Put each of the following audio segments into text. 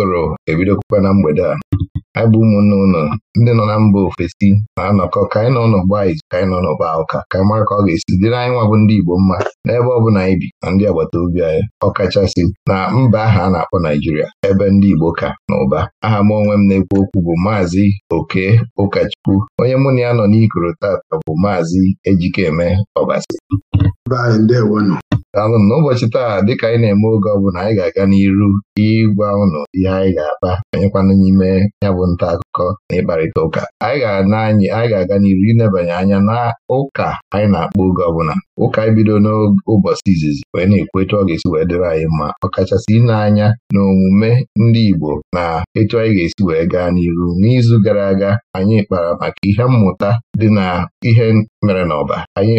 gụrụ ebidokwa na mgbede a anyị bụ ụmụnne ụlọ ndị nọ na mba ofesi na-anọkọ ka anyị nọ n'ọgba izu ka anyị nọ n'ụba ụka ka anyị mara ka ọ ga-esi dịrị anyị nwa bụ ndị Igbo mma n'ebe ọ na anyị bi na ndị agbata obi anyị ọkachasị na mba aha a na-akpọ Naijiria ebe ndị Igbo ka na ụba aha m onwe m na-ekwu okwu bụ maazị Oke Ụkachukwu onye mụ na ya nọ n'ikoro tata bụ maazị Ejikeme Ọbasi na ụbọchị taa dịka anyị na-eme oge ọbụla anyị ga-aga n'iru ịgwa ụnụ ihe anyị ga-akpa anyịkwana n'ime ya bụ nta akụkọ na ịkparịta ụka anyị ga-aga n'iru ịnebanye anya na ụka anyị na akpọ oge ọbụla ụka anyị bido n'ụbọchị izizi wee na-ekwu etu ọ ga-esi wee dịrị anyị mma ọkachasị ile anya na omume ndị Igbo na etu anyị ga-esi wee gaa n'iru n'izu gara aga anyị kpara maka ihe mmụta dị na ihe mere n'ọba anyị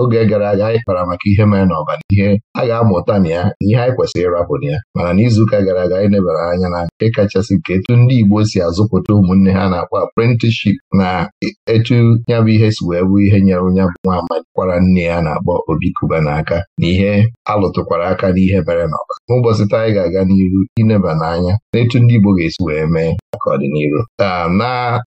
oge gara aga anyị kpara maka ihe mere n'ọba na ihe a ga-amụta na ya na ihe anyị kwesịrị ịrapụ na ya mana n'izuụka gara aga anyị nebara anya na nke kachasị nke etu ndị Igbo si azụpụta ụmụnne ha na-akpọ apprenticeship na etu ya bụ ihe si wee bụ ihe nyere nya bụ nwa amakwara nne ya na na-akpọ Obi Kuba n'aka na ihe alụtụkwara aka n'ihe mere n'ọba n'ụbọchị taa anyị ga-aga n'iru ineba n'anya n'etu ndị Igbo ga-esi wee mee maka ọdịnihu ah, na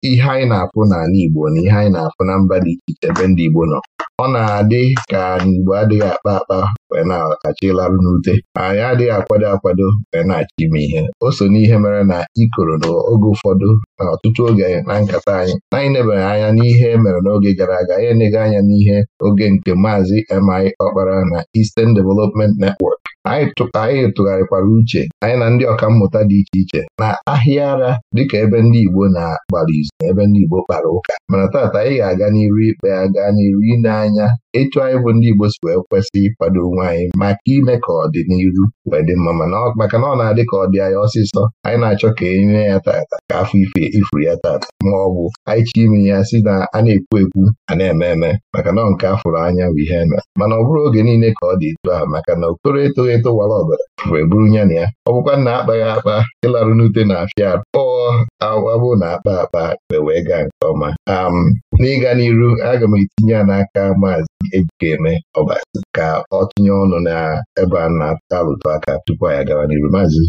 ihe anyị na-afụ n'ala Igbo na ihe anyị na-afụ na mba dị iche iche ebe ndị Igbo nọ ọ na-adị ka Igbo adịghị akpa akpa wee na achị larụ n'ute anyị adịghị akwado akwado wee na achị ime ihe o so n'ihe mere na ikoro n'oge ụfọdụ na ọtụtụ oge na nkata anyị na anyị nebere anya n'ihe e mere n'oge gara aga anyị enega anya n'ihe oge nke maazị Maazị MI Ọkpara na Eastern Development Network anyị tụgharịkwara uche anyị na ndị mmụta dị iche iche na ahịa ara dịka ebe ndị Igbo na-agbara izu na ebe ndị Igbo kpara ụka mana taata anyị ga-aga n'iru ikpe aga n'iru ile anya etu anyị bụ ndị Igbo si wee kwesị ịkwado onwe anyị maka ime ka ọdịniru wee dị mma mana maka na ọ na-adị ka ọ dị anyị ọsịsọ anyị na-achọ ka e nye ya taata ka afọ ife ifuru ya taata ma ọ bụ anyị chọ ime ya si na a na-ekwu ekwu a na-eme eme maka na nke afụrụ anya bụ ihe eme mana ọ bụrụ oge niile ka ọ dị etu maka na okoro etoghị mkpakọrịta ụwara ọbara wee bụrụ ya na ya ọ bụkwa na akpaghị akpa ịlarụ n'ute na afịa akpọọ awabụ na akpa akpa e wee gaa nke ọma um, n'ịga n'iru aga m etinye ya n'aka maazị Ejikeme Ọbasi ka ọ tinye ọnụ n'ebe a na-alụtụ aka tupu anyị agawa n'iru maazị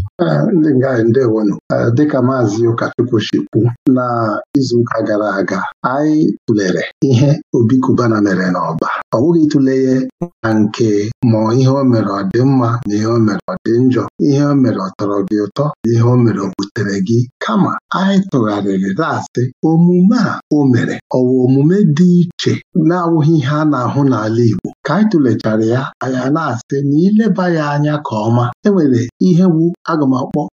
ndị nga ndewonu dịka maazị Ụkachukwu shikwu na izuụka gara aga anyị tụlere ihe obikubana mere n'ọba ọ bụghị ịtụle ya na nke ma ihe o mere ọ dị mma na ihe o mere ọ dị njọ ihe o mere ọ tọrọ gị ụtọ na ihe o mere o butere gị kama anyị tụgharịrị na omume a o mere ọwụ omume dị iche na-awụghị ihe a na-ahụ n'ala Igbo ka anyị tụlechara ya anyị na-asị na ileba ya anya ka ọma enwere ihe wu aga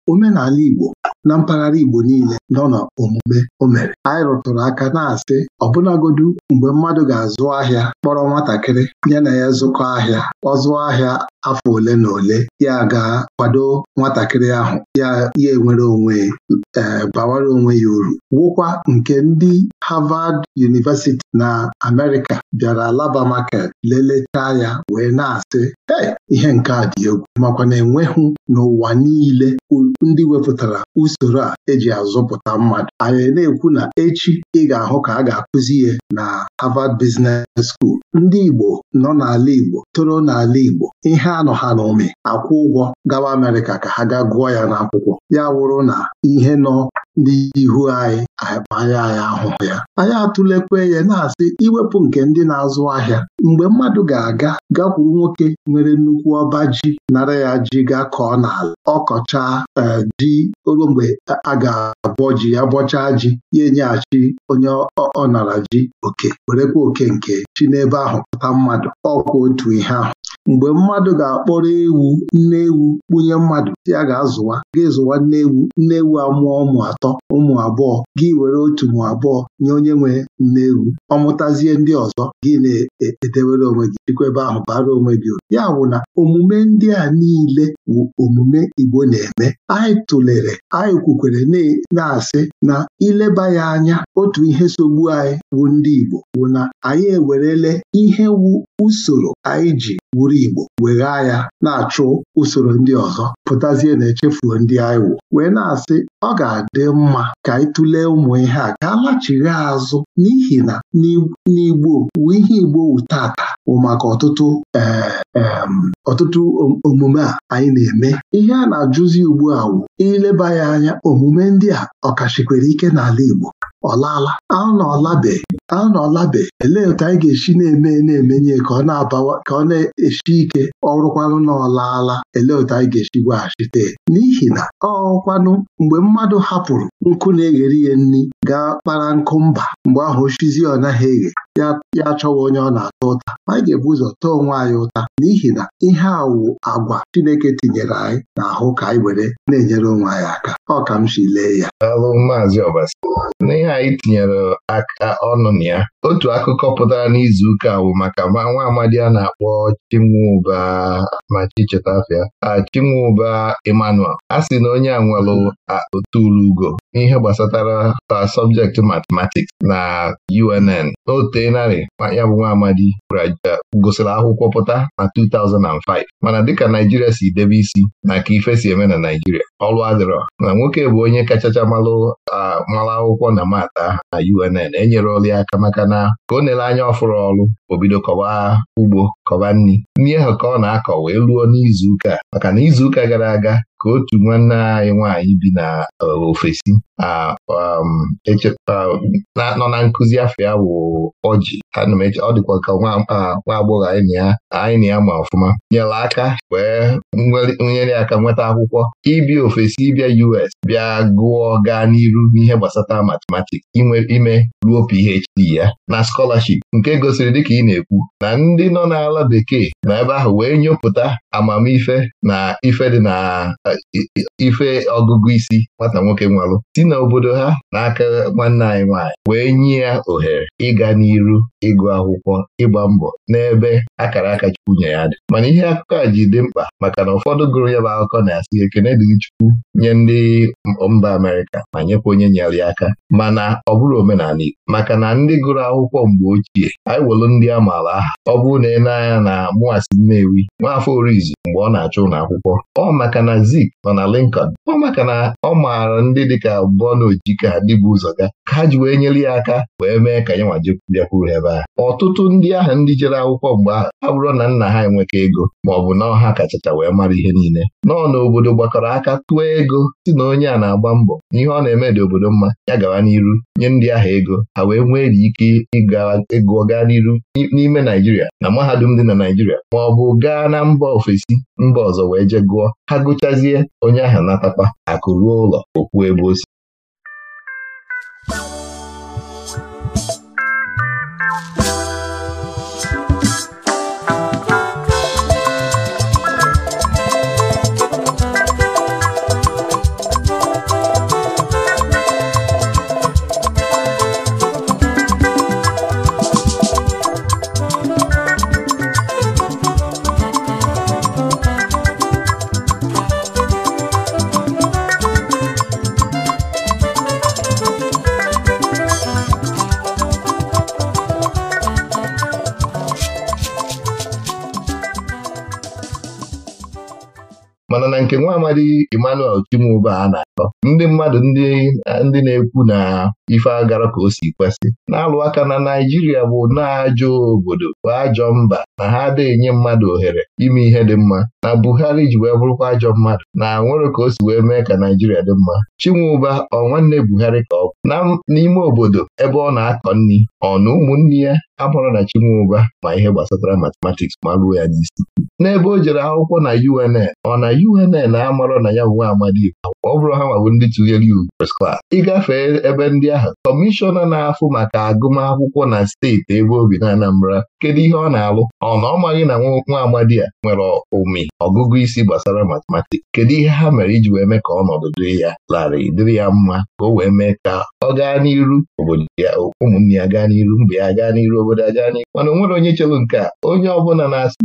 omenala Igbo na mpaghara Igbo niile nọ na omume o mere anyị rụtụrụ aka na-asị ọbụlagodu mgbe mmadụ ga-azụ ahịa kpọrọ nwatakịrị ya na ya zụkọ ahịa ọ zụọ ahịa afọ ole na ole ya ga-kwado nwatakịrị ahụ ya ya enwere onwe e bawara onwe ya uru wụkwa nke ndị Harvard University na Amerịka bịara Alaba Market lelechaa ya wee na-asị ee ihe nke a dị egwu makwa na enweghị n'ụwa niile ndị wepụtara usoro a eji azụpụta mmadụ anyị na-ekwu na echi ị ga-ahụ ka a ga-akụzi ya na Harvard Business School ndị Igbo nọ n'ala Igbo toro n'ala Igbo ihe anọ ha n'ome akwụ ụgwọ gawa Amerịka ka ha gaa gụọ ya n'akwụkwọ ya wụrụ na ihe nọ ndị ihu anyị anya anyị ahụhụ ya anyị atụlekwe ya na-asị iwepụ nke ndị na-azụ ahịa mgbe mmadụ ga-aga gakwuru nwoke nwere nnukwu ọba ji nara ya ji gaa kọọ n'ala ọkọchaa eh, ji ogo mgbe a ga-abọ ji ya bọchaa ji ya enyeghachi onye ọ nara ji oke werekwa oke nke chi n'ebe ahụ pụta mmadụ ọkwa otu ihe ahụ mgbe mmadụ ga-akpọrọ ewu nne ewu kpunye mmadụ ya ga-azụwa ga-ezụwa nne ewu nne ewu amụọ ụmụ atọ atọ ụmụ abụọ gị were otu mụ abụọ nye onye nwe nne ewu ọ mụtazie ndị ọzọ gị na-edewere onwe gị jikwebe ahụ bara onwe gị uru ya bụ na omume ndị a niile bụ omume Igbo na-eme anyị tụlere anyị kwukwere e, na-asị na ileba ya anya otu ihe sogbu anyị bụ ndị Igbo bụ na anyị ewerele ihe wu usoro anyị ji wuru Igbo weghaa ya na-achụ usoro ndị ọzọ pụtazie na echefuo ndị anyị wụ wee na-asị ọ ga-adị mma ka anyị tụlee ụmụ ihe a ka a azụ n'ihi na n'Igbo wu ihe Igbo wu tata bụ maka ọtụtụ e, e, ọtụtụ omume a anyị na-eme ihe a na-ajụzi ugbu a wu ileba ya anya omume ndị a ọkachikwere ike n'ala Igbo ọlala laala anụ na ọlabeghị anọlabe elee otu anyị ga-esi na-eme na-emenye ka ọ na-abawa ka ọ na-esi ike ọrụkwanụ na ọlaala elee otu anyị ga-esi gwaghachite n'ihi na ọkwanụ mgbe mmadụ hapụrụ nkụ na-eghere ihe nri gaa kpara nkụ mba mgbe ahụ oshizi ọ naghị eghe ya ya achọwa onye ọ na-ata ụta ma anyị ga-ebu ụzọ taa onwe anyị ụta n'ihi na ihe a wụ agwa Chineke tinyere anyị n'ahụ ka anyị were na-enyere onwe anyị aka ọ ka m si lee ya alụ maazị Ọbasi n'ihe anyị tinyere aka ọnụ na ya otu akụkọ pụtara n'izu ụka wụ maka nwa amadi a na-akpọ Chinweuba ma Chicheta afịa Chinweuba Emmanuel a sị na onye a nwelụ n'ihe gbasatara sọbjekti matematiks na UNN n'otu wee naanị, ya bụ nwa amadi gosiri akwụkwọ pụta na 2005 mana dịka Naijiria si debe isi na ka ife si eme na Naijiria Ọlụ adịrọ na nwoke bụ onye kachacha malụ mara akwụkwọ na mata na UNN enyere ọrụ ya aka maka na ka o nere anya ọfụrụ ọrụ obido kọwa ugbo kọwa nri nri ahụ ka ọ na-akọ wee ruo n'izuụka maka na izuụka gara aga ka otu nwanne anyị nwaanyị bi na e, ofesi um, nọ na nkụzi afọ ya wụ ọjị ọ dịkwa ka nwa agbọghọ anyị na ya ma ọfụma nyere aka wee nyere aka nweta akwụkwọ ibi ofesi bịa US bịa gụọ gaa n'iru n'ihe gbasata matematiks inwe ime ruo PhD ya na skolaship nke gosiri dịka ị na-ekwu na ndị nọ n'ala bekee na ebe ahụ wee nyopụta amamife na ife dị na e, e, ife ọgụgụ isi nwata nwoke nwalụ si na obodo ha n'aka nwanne anyị nwaanyị wee nye ya ohere ịga n'iru ịgụ akwụkwọ ịgba mbọ n'ebe akara aka Chukwu nye ya dị mana ihe akụkọ a ji dị mkpa maka na ụfọdụ gụrụ ya bụ akụkọ na-asị ekene dị nye ndị mba Amerịka ma nyekwa onye nyere ya aka mana ọ bụrụ omenala Igbo maka na ndị gụrụ akwụkwọ mgbe ochie anyị welụ ndị a maara aha ọ bụrụ na ị na-anya na mụwasi Nnewi nwaafọ Orizu mgbe ọ na-achọ ụlọ akwụkwọ ọ maka na Zik nọ na Lincoln ọ maka na ọ maara ndị dịka Bọna Ojika ndị bụ ụzọ ga ka ha ji wee nyere ya aka wee mee ka ya nwa bịakwuru ebe a ọtụtụ ndị ahụ ndị jere akwụkwọ mgbe ahụ ha bụrụ na nna ha enweka ego ma ọ na ọha kachacha wee mara ihe niile nọọ n'obodo gbakọrọ aka tụọ ego si na onye a na-agba mbọ n'ihe ọ na-eme dị obodo mma ya gawa n'iru nye ndị ahụ ego ha wee nwee ike ịgụọ gaa n'iru n'ime Naijiria na mahadum dị na Naijiria ma ọ bụ gaa na mba ofesi mba ọzọ wee je gụọ ha gụchazie onye ahụ natakwa akụ ruo ụlọ okwu ebe o si nke nwa amadi Emmanuel Kim. ube a na-akọ ndị mmadụ ndị na-ekwu na ife agara ka o si kwesị na-alụ aka na Naijiria bụ na-ajọ obodo bụ ajọ mba na ha ada-enye mmadụ ohere ime ihe dị mma na Buhari ji wee bụrụkwa ajọ mmadụ na nwere ka o si wee mee ka Naijiria dị mma Chinweuba ọ nwanne Buhari ka ọ bụ n'ime obodo ebe ọ na-akọ nri ọ na ụmụnne ya amụrụ na Chinweuba ma ihe gbasatara matematiks ma ruo ya n'isi n'ebe o jere akwụkwọ na UNN ọ na UNN na-amarọ na ya nwe amadi ọ bụrụ ha nwawo ndị tụnyere iwu first Ị gafee ebe ndị ahụ kọmishọna na-afụ maka agụmakwụkwọ na steeti ebe obi na Anambra kedu ihe ọ na-alụ ọ na ọ maghị na nwa amadi a nwere ụmị ọgụgụ isi gbasara matematiks kedu ihe ha mere iji wee mee ka ọnọdụ dịrị ya larịị dịrị ya mma ka o wee mee ka ọ gaa n'iru obodo ya ụmụnne ya gaa n'iru mba ya gaa n'iru obodo ya gaa n'iru mana onwere onye chelụ nke a onye ọbụla na-asị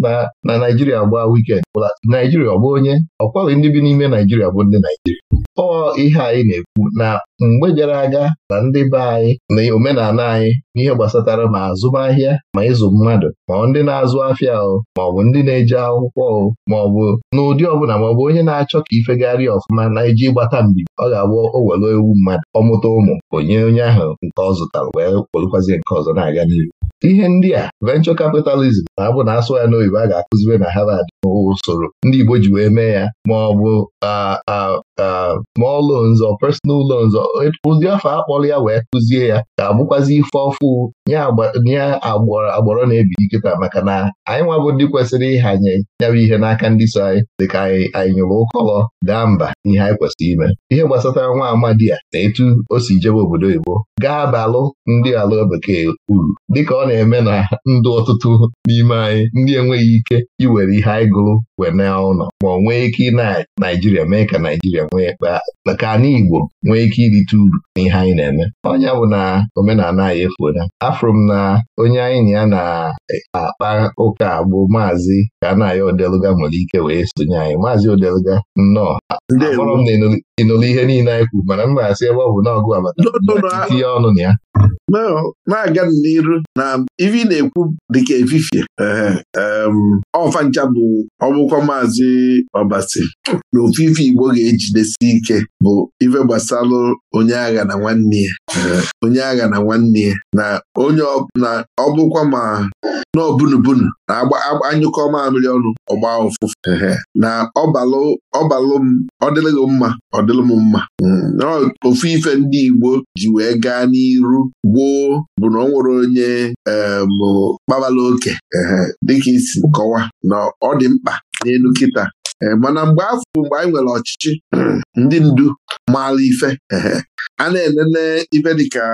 na Naijiria gbaa wikend Naijiria ọ bụ onye ọkwaghị ndị bi n'ime Naijiria bụ ndị Naijiria Naịjirịa ọ ihe anyị na-ekwu na mgbe gara aga na ndị be anyị na omenala anyị n'ihe gbasatara ma azụmahịa ma ịzụ mmadụ ma ndị na-azụ afịa o ma ọ bụ ndị na-eje akwụkwọ o ma ọ bụ n'ụdị ọbụla ma ọ bụ onye na-achọ ka ifegharị ọfụma na iji gbata mbibi ọ ga-abụ o ewu mmadụ ọmụta ụmụ onye onye ahụ nke ọ zụtara wee kpolụkwazi nke ọzọ na-aga n'ihu ihe ndị a venchọ capitalism na-abụ na asụ ya n'oyibo a ga-akụzibe na Harvard usoro ndị Igbo ji wee mee ya ma ọ bụ small loans or personal loans ụdị afọ akpọrọ ya wee kụzie ya ga-abụkwazi ife ọfụ nye agbọrọ na-ebili nkịta maka na anyị nwa bụ ndị kwesịrị ịhanye nyabụ ihe n'aka ndị so anyị dịka anyị anyị nyụrụ ụkọlọ gaa mba ihe anyị kwesịrị ime ihe gbasatara nwa amadi a na etu o si jebe obodo oyibo gaa abalụ ndị ala bekee uru dịka ọ na-eme na ndụ ọtụtụ n'ime anyị ndị enweghị ike iwere ihe anyị gụrụ wee na ụlọ ma ọ nwee ike ị Naijiria mee ka Naijiria nwee ka anyị Igbo nwee ike irite uru ihe anyị na-eme ọnya bụ na omenala anyị efuola afọ afụrụ m na onye anyị na ya na-akpa e, ụka bụ maazị ka a na odeluga nwere ike wee sonye anyị maazị odeluga nnọọ akpọrọ m na ịnụlụ ihe niile anyị kwuru mana m ga-asị ebe ọ bụ n'ọgụ abata tinye ọnụ na ya na-aga n'iru na ivi na-ekwu dịka efifie ọfa ncha bụ ọbụkwa maazị ọbasi na ofufe Igbo ga-ejidesi ike bụ ife gbasalụ onye agha na nwanne ya onye agha na nwanne ya na onye ọbụkwa ma n'obunubunu na-anyụkọ mamịrị ọnụ ọgba ụfụfụ na ọbalụ m ọ mma ọ m mma mm, ofu ife ndị Igbo ji wee gaa n'iru gboo bụ na ọ nwere onye kpabala oke dịka isi kọwa na ọ dị mkpa n'elu kịta eh, mana mgbe afọ mgbe anyị nwere ọchịchị ndị ndu maala ife a na-enene ife dịka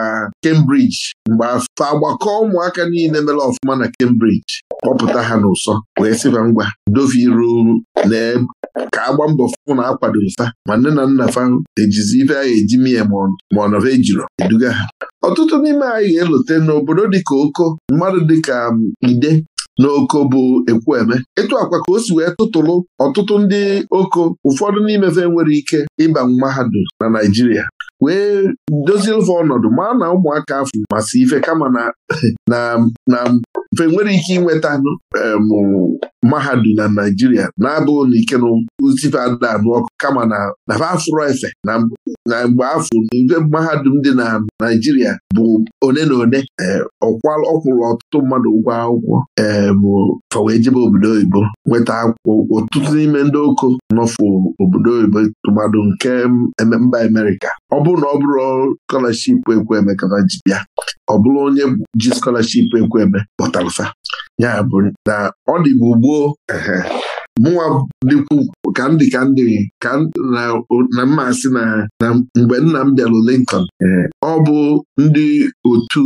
Cambridge mgbe afọ agbakọ ụmụaka niile mere ọfụma na Cambridge kpọpụta ha n'ụsọ wee sịba ngwa doviru lee ka agba mbọ fụ na akwado nsa ma nne na nna fa ejizi ife ahụ eji mie ma ọ nọva ejiro eduga ha ọtụtụ n'ime anyị ga-elote n'obodo dịka oko mmadụ dịka um, ide n'oko bụ eme. ịtụ akwa ka o si wee tụtụlụ ọtụtụ ndị oko ụfọdụ n'imefe nwere ike ịba mahadum na Naịjirịa wee dozie ofe ọnọdụ ma na ụmụaka afọ masị ife kama na na mfe nwere ike inweta mahadum na Naijiria na-abụghị na ike n'uzife ada anụ ọkụ kama na afro efe na mgbe afọ ibe mahadum dị na Naijiria bụ one na one ọ kwụrụ ọtụtụ mmadụ ụgwọ akwụkwọ fa wee jebe obodo oyibo nweta akwụkwọ ọtụtụ n'ime ndị oko nọfụ obodo oyibo tụmadụ nke mba Amerịka ọ bụrụ na ọ bụrụ skọlaship ekwe eme ka ji bịa ọ bụrụ onye ji skọlashipụ ekwe eme pụtara alfa ya bụ na ọ dịbụ gboo mụnwa dịkwu ka ndị ka ndị ka na si na mgbe nna m bịalụ Lincoln ọ bụ ndị otu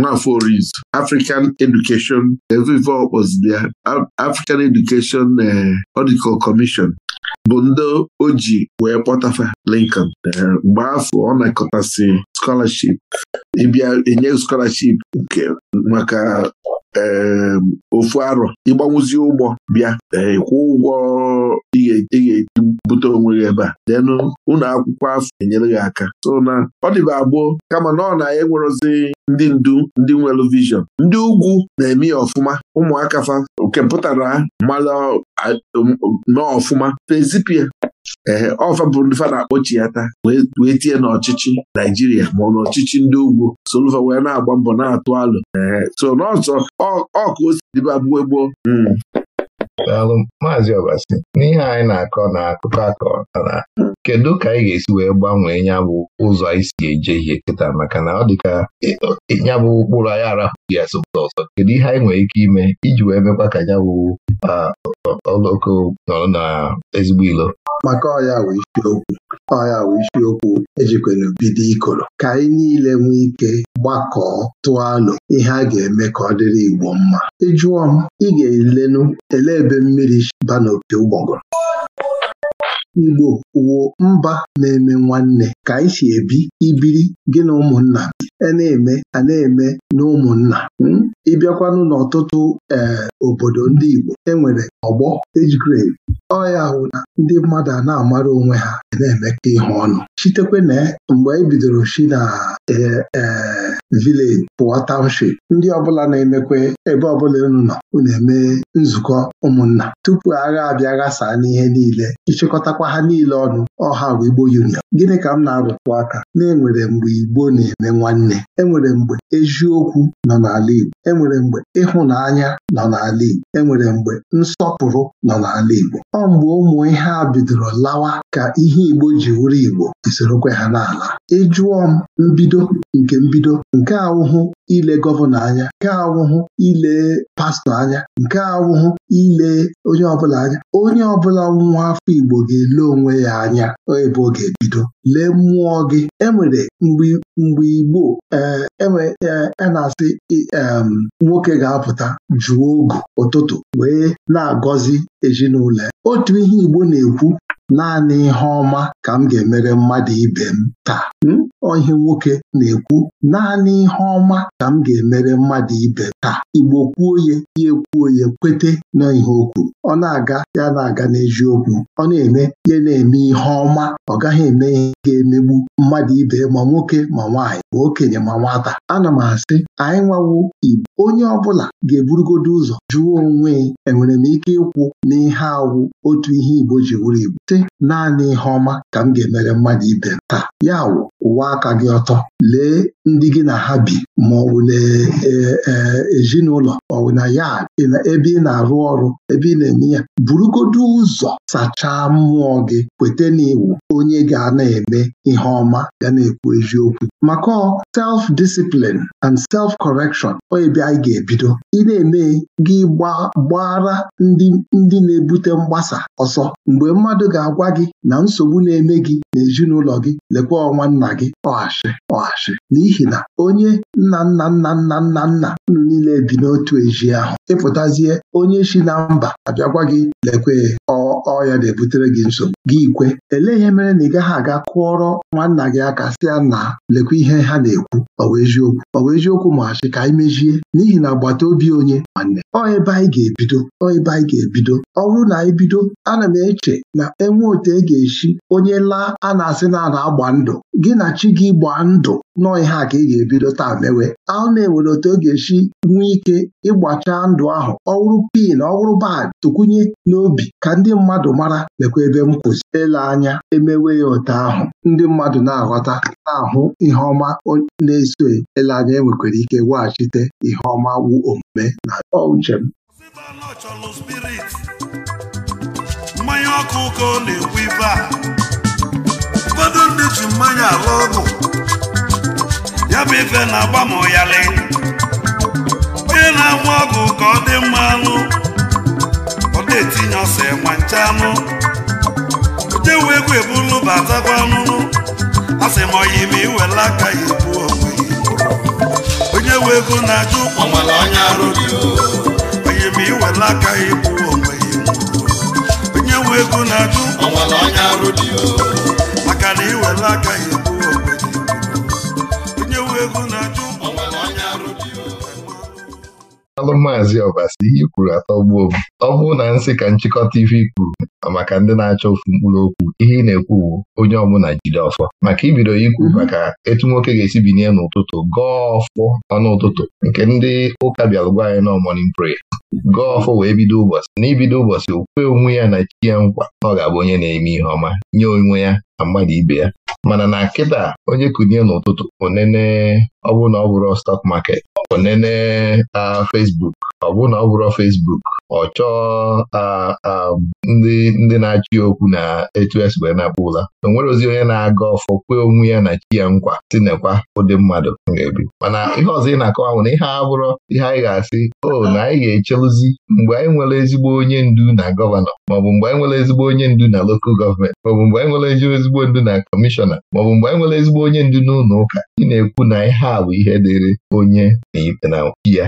Nwafọ Orizu African Education evive ọkpọziri ya African Education Ọdịkọ Commission bụ ndị o ji wee kpọtafa Lincoln mgbe afọ ọ nakọtasị scholarship ịbịa enye scholarship nke maka ofu arọ ịgbanwụzi ụgbọ bịa ịkwụ eh, ụgwọ ị ga-ebute onwe gị ebe a denụ ụlọ akwụkwọ afọ enyere gị aka so na ọ dịba abụọ kama na ọ na ya e enwerozi ndị ndu ndị nwere vishọn ndị ugwu na-eme ya ọfụma ụmụaka fa nke pụtara mara um, ọfụma. fezipia ee eh, ọfa bụ ndị fa na-akpọchi ya taa wee tie n'ọchịchị Naijiria ma ọ n'ọchịchị ndị ugwu solva wee na-agba mbọ na-atụ alụ e so n'ọzọ ọ ka gboo gboo hmm. maazị Obasi n'ihe anyị na-akọ na akụkọ akọ na kedu ka anyị ga-esi wee gbanwee ya bụ ụzọ anyị si eje ihe kịta maka na ọ dịka e, e, ya bụ ụkpụrụ anyị arahụghị asụpụta ọzọ kedu ihe anyị nwere ike ime iji wee mekwa ka ya bụ oloko nọrọ na ezigbo ilo maka ọya wee isiokwu ọya wee isiokwu ejikwere bido ikoro ka anyị niile nwee ike gbakọọ tụọ alụ ihe a ga-eme ka ọ dịrị Igbo mma ịjụọ m ị ga-elenu ele ebe mmiri banopi ụgbọgụrụ Igbo wụ mba na-eme nwanne ka anyị si ebi ibiri gị na ụmụnna a e na-eme a na-eme na ụmụnna hmm? ịbịakwanụ n'ọtụtụ ee eh, obodo ndị Igbo enwere ọgbọ age grade ọ ya hụ na ndị mmadụ a na-amara onwe ha na-emekọ ịhụ ọnụ chitekwe na mgbe anyị e bidoro shi na e, e, vileji pụọ township ndị ọbụla na-emekwe ebe ọbụla unu nọ na eme nzukọ ụmụnna tupu agha abịa ghasaa n'ihe niile ịchịkọtakwa ha niile ọnụ ọha bụ Igbo Union gịnị ka m na-arụtụ aka na enwere mgbe Igbo na-eme nwanne enwere mgbe eziokwu nọ n'ala Igbo enwere mgbe ịhụnanya nọ n'ala Igbo enwere mgbe nsọpụrụ nọ n'ala Igbo ọ mgbe ụmụ ihe a bidoro lawa ka ihe Igbo ji wụrụ Igbo isorokwe ha n'ala ịjụọ m mbido nke mbido nke awụhụ ile gọvanọ anya nke awụhụ ile pastọ anya nke awụhụ ile onye ọbụla anya onye ọbụla nwa afọ Igbo ga-ele onwe ya anya ebe ọ ga-ebido lee mmụọ gị enwere mgbe Igbo e a e e, e na-asị nwoke ga-apụta jụọ ogu ụtụtụ wee na-agọzi ezinụlọ ya otu ihe Igbo na-ekwu Naanị ihe ọma ka m ga-emere mmadụ ibe m taa. M? Hmm? Ọ nwoke na-ekwu, naanị ihe ọma ka m ga-emere mmadụ ibe m. ka Igbo kwuo ya ya ekwuo ya kwete na o kwuru ọ na-aga ya na-aga n'eziokwu ọ na-eme ya na-eme ihe ọma ọ gaghị eme ihe ga-emegbu mmadụ ibe ma nwoke ma nwaanyị ma okenye ma nwata ana m asị anyị nwawo Igbo onye ọbụla ga-eburugodo ụzọ jụọ onwe enwere m ike ịkwụ n'ihe awụ otu ihe Igbo ji wụrụ Igbo sị naanị ihe ọma ka m ga-emere mmadụ ibe m taa ya wụ ụwa aka gị ọtọ lee ndị gị na ha bi ma ọ bụ e, e, ezinụlọ ọ na ya ebe ị na-arụ ọrụ ebe ị na-enye ya burugodo ụzọ sachaa mmụọ gị kweta na iwu onye ga na-eme ihe ọma ga na-ekwu eziokwu maka self discipline and self correction onye bịa anyị ga-ebido ị na-eme gị gbara ndị na-ebute mgbasa ọsọ mgbe mmadụ ga-agwa gị na nsogbu na-eme gị n'ezinụlọ gị lekwa ọnwa nna gị ọghachi ọghachi n'ihi na onye nna nna nna nna nna nna niile bi n'otu ezi ahụ ịpụtazie onye si na mba abịagwa gị lekwe ọya na-ebutere gị nsogbu gị ikwe elee ihe mere na ị gaghị aga kụọrọ nwanna gị aka sị na lekwa ihe ha na-ekwu ọwa eziokwu ọwa eziokwu ma ka anyị mezie n'ihi na agbata obi onye nwanne ọ ebe anyị ga-ebido ọ ebe anyị ga-ebido ọ bụrụ na anyị bido ana m eche na enwe otu e ga-esi onye laa a na-asị na a na-agba ndụ gị na chi gị gba ndụ nọọ ihe a ka ị ga-ebido taa mewe ahụ na-enwere otu ọ e ga-esi nwee ike ịgbachaa ndụ ahụ ọ wụrụ pin ọ wụrụ bad tụkwunye n'obi ka ndị mmadụ mara lekwa ebe m kwụzi ele anya emewe ya otu ahụ ndị mmadụ na-aghọta na-ahụ ihe ọma na-eso ele anya enwekwara ike weghachite ihe ọma wu omume na uche m mmanya ọkụ ka ọ na-ekwu ibe a ụfọdụ ndị ji mmanya alụ ọgụ ya bụ ife na-agba ma ọyalị onye na-agba ọgụ ka ọ dị mma anụ na-etinye ọsọ enwe nche anụ udewu egwu ebulu batakwa ọnụnụ asị m ọya ime iwela aka ya ebu onwe onye wu ego na-ajụ ọnwere onye arụ onye ime iwela aka ya ebu onwe onye wu ego na-ajụ ọnwere onye arụ maka na iwela aka ya bụrụ maazị ọbasi ihe kwuru atọgbuo m ọ bụrụ na nsị ka nchịkọta ife kwuru maka ndị na-achọ ofu mkpụrụ okwu ihe ị na-ekwu bụ onye ọbụla jide ọfọ maka ibido ikwu mhm. maka etu nwoke ga-esi binye n'ụtụtụ gọọ ọfọ ọnụ ụtụtụ nke ndị ụka bịalụgwa anyị nọ mọnin prayer gọọ ọfọ wee bido ụbọchị na ibido ụbọchị okwe onwe ya na chi ya nkwa na ọ ga-abụ onye na-eme ihe ọma nye onwe ya na mmadụ ibe ya mana na nkịta onye kunye n'ụtụtụ onene ọ bụrụ na ọ bụrụ stock market onene a ah, Facebook ọ bụrụ na ọ bụrụ Facebook ọ chọọ ndị na-achị okwu na etu esi wee na-akpọ ụla o nwere ozi onye na-aga ọfọ kwee onwe ya na chi ya nkwa tinekwa ụdị mmadụ ga-ebi mana ihe ọzọ ị na-akọwa bụ na ihe a ihe anyị ga-asị o na anyị ga-echeluzi mgbe anyị nwere ezigbo onye ndu na gọvanọ maọbụ mgbe anyị nwere ezigbo onye ndu na lokal gọọmenti maọbụ mgbe anyị nwere ezigbo ndu na kọmishọna maọbụ mgbe anyị nwere ezigbo onye ndu n'ụlọ ụka ị na-ekwu na ihe a bụ ihe dịrị onye na chi ya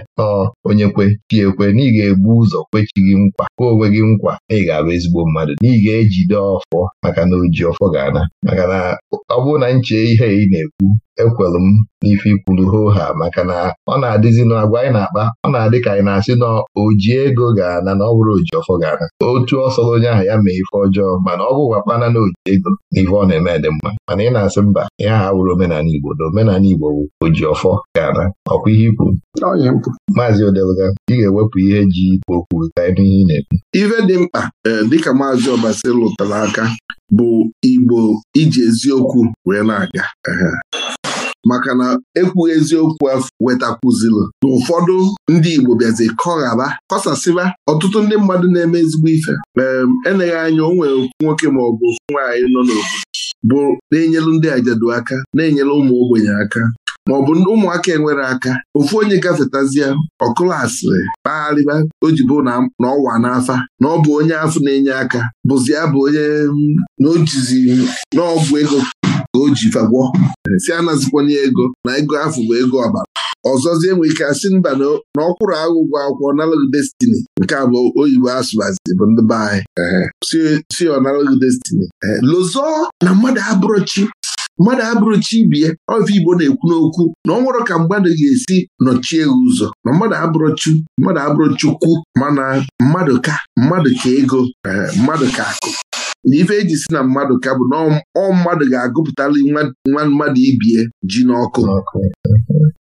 onye tie ekwe na ga egbu ụzọ kwechi gị nkwa kwe onwe gị nkwa na ị ga-abụ ezigbo mmadụ na ga-ejide ọfọ maka na oji ọfọ ga-ana maka na ọ bụrụ na nche ihe ị na-ekwu ekwelu m n'ife hoo ha maka na ọ na-adịzi n'agwa anyị na-akpa ọ na-adị ka anyị na-asị na oji ego ga-ana na ọ bụrụ oji ọfọ ga-ana otu ọsọrọ onye ahụ ya mee ife ọjọọ mana ọ bụkwa kpana na oji ego n'ife ọ na-eme dị mma mana ị na-asị mba ihe aha wụrụ omenala Igbo na omenala Igbo bụ oji ọfọ ga-ana ọkwa ihe ikwu maazị odelga ị ga-ewepụ ihe ji okwu kwuru ka ị n'ihe ị na-ekwu ife dị mkpa e, dịka maazị Ọbasi lụtara aka bụ Igbo iji eziokwu wee na-aga maka na ekwughị eziokwu afọ wetakwuzilụ na ụfọdụ ndị Igbo bịazi kọghaba kọsasịba ọtụtụ ndị mmadụ na-eme ezigbo ife eneghe anya o nwere nwoke ma ọ bụ nwaanyị nọ n'obodo bụ na-enyelu ndị ajadu aka na-enyelu ụmụ ogbenye aka ma ọ bụ ụmụaka enwere aka ofu onye gafetazie ọkụlụ asịrị kpagharịba o na ọwa n'afa na ọ bụ onye afọ na-enye aka bụzi ya bụ onye na ojizi n'ọgwụ ego ka o ji fagwọ si anazikwana ego na ego afụ bụ ego ọbara ọzọzie enwe ike asị mba na ọkwụrụ agụgwọ akwụkwọ nalụg destini nke a bụ oyibo asụbazi bụ ndị be anyị si ọnalụg destini lozọ na mmadụ abụrụchi mmadụ abụrụ chi ibie ọfụ Igbo na-ekwu n'okwu na ọ nwere ka mmadụ ga-esi nọchie ụzọ na mmadụ abụrụ mmadụ abụrụ chukwu mana mmadụ ka mmadụ ka ego mmadụ ka akụ N'ife ife eji si na mmadụ ka bụ na ọ mmadụ ga-agụpụtali nwa mmadụ ibie ji n'ọkụ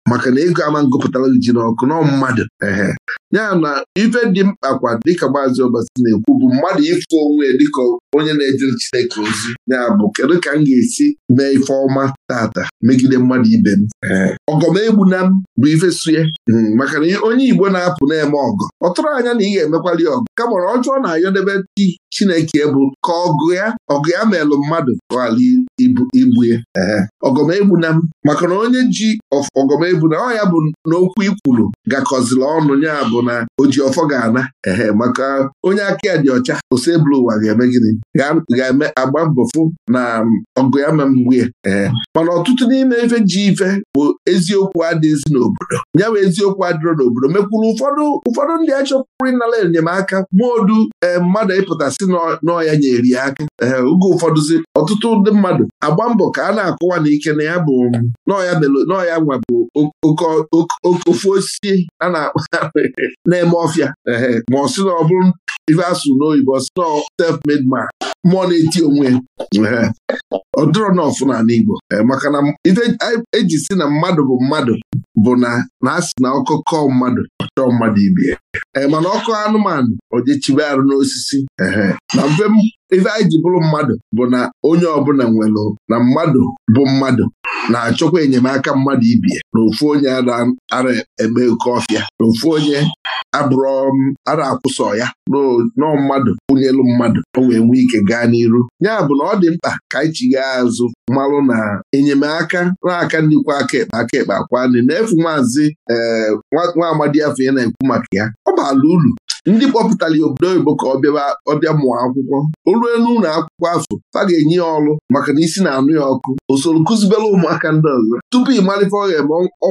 maka na ego ama ngụpụtara ji n'ọkụ nọ mmadụ ehe ya na ife dị mkpa kwa dịka maazị Ọbasi na-ekwu bụ mmadụ ịfụ onwe dịka onye na-ejere Chineke ozi ya bụ kedu ka m ga-esi mee ife ọma tata megide mmadụ ibe m ọgọ m bụ ife sue hmm, maka na onye Igbo na-apụ na-eme ọgọ ọ tụrụ anya na ị ga-emekwali ọgụ kama ọjọọ na-ayọdebe di Chineke bụ ka ọgụ ya ọgụ ya melụ mmadụ ala igbu ya ọgọmegbu m maka na onye ji ọgọmegbu bụ na ọ ya bụ n'okwu ikwulu gakọziri ọnụ ya bụ na oji ọfọ ga-ana ehe maka onye aka ya dị ọcha ose bụlụ ụwa ga-eme gịnị ga-eme agba mbọfụ na ọgụ ya ma ee mana ọtụtụ n'ime ife ji ife bụ eziokwu adịghịzi n'obodo ya bụ eziokwu adịrọ n'obodo mekwuru ụfọdụ ụfọdụ ndị achọpụrụ ịnara enyemaka maodu ee mmadụ ịpụtasị n'ọya ya aka ee oge ụfọdụzi ọtụtụ ndị mmadụ agba mbọ ka a na-akụwa n'ike na ya bụ n'ọya nwabụ ofu osisi a na-akpa na-eme ọfịa ma ọ sị na ọ bụrụ ife asụ n'oyibo ọ sị na self-made man mmụọ na-eti onwe ọ dụrọ na ọfụna n'Igbo maka na ife eji si na mmadụ bụ mmadụ bụ na na asị na ọkụ kọọ mmadụ chọọ mmadụ ibe mana ọkụ anụmanụ ojechibe arụ n'osisi na mfe ife anyị ji bụrụ mmadụ bụ na onye ọbụla nwere na mmadụ bụ mmadụ na-achọkwa enyemaka mmadụ ibie na ofu onye ara eme oke ọfịa na ofu onye abụrụ um, ara akwụsọ ya nọọ mmadụ kwụnyelu mmadụ o wee nwee ike gaa n'iru ya bụ na ọ dị mkpa ka anyị chighaa azụ mmalụ na enyemaka na-aka ndịkwa aka ekpe aka ekpe akwa nri na efu maazị ee eh, nwa amadi afọ ya na-ekwu maka ya ọ bụ ala uru ndị kpọpụtara ya obodo oyibo ka ọ mụọ akwụkwọ o ruo n'ụlọ akwụkwọ afọ fa ga-enye ya ọrụ maka na isi na-anụ ya ọkụ usoro soro ụmụaka ndị ọzọ tupu ị malite ọ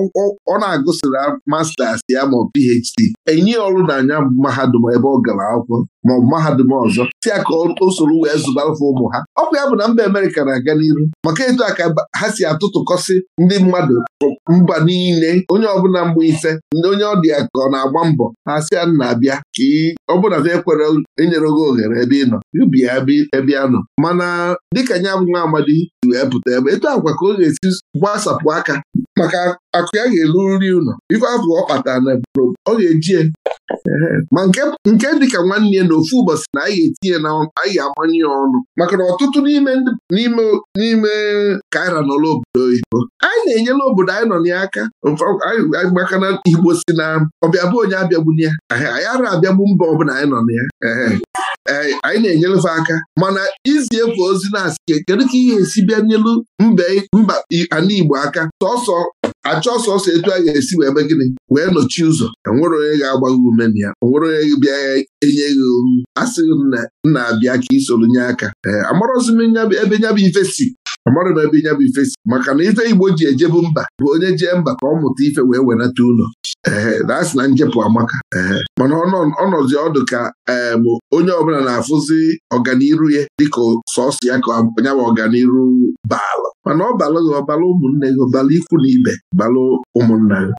ọ na-agụsịrị mastas ya ma PhD enye ọrụ n'anya mahadum ebe ọ gara akwụkwọ maọbụ mahadum ọzọ si ya ka o soro wee zụbarụfe ụmụ ha ọkwa ya bụ na mba Amerịka na-aga n'iru maka etu a ka ha si atụtụkọsị ndị mmadụ mba niile onye ọbụla mgbe ise ndị onye ọ dị ya ka ọ na-agba mbọ ha si ya na-abịa ka ọbụla na ekwere enyere gị ohere ebe ị nọ ubi ya ebe ya nọ mana dịka nya bụ nwa amadi wee pụta ebe etu agwa ka ọ ga-esi gbasapụ aka maka akụ ya ga-eru nri ụlọ ife afọ ọ kpatara na ọ ga-eji ma nke dịka nwanne ya na ofu ụbọchị na anyị ga-etinye na anyị ga-amanye ya ọnụ maka na ọtụtụ n'ime kaira nọla obodo oyibo anyị na-enyela obodo anyị nọ n'aka maka na igbo si na ọbịabụ onye abịagbuna ya anyị ara abịagbu mba ọbụla anyị nọ na ya anyị na-enyelefe aka mana izi efu ozi na-asị kedu ka ihe esi bịa nyelu mba ala Igbo aka sọsọ achọ sọsọ etu a ga-esi wee be gịnị wee nọchi ụzọ enwere onye ga-agba gị ume na ya onwere onye bịa enye gị ohu asịghị m na-abịa ka isoro nye aka ee amarọzi m ebe bụ ife si amarọ m ebe nyabụ ife si maka na ife Igbo ji ejebu mba bụ onye jee mba ka ọ mụta ife wee wenata ụlọ ee dasị na njepụ amaka ee mana ọnọzi ọdụ ka em onye ọbụla na-afụzi ọganiru ya dịka sọsọ ya ka nyabụ bụ ọganiru baala mana ọ balụ gị ọ ụmụnne gị balụ ikwu na ibe balụ ụmụnna gị